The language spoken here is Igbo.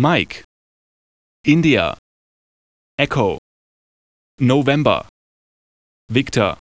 Mike. India. Echo. November. Victor.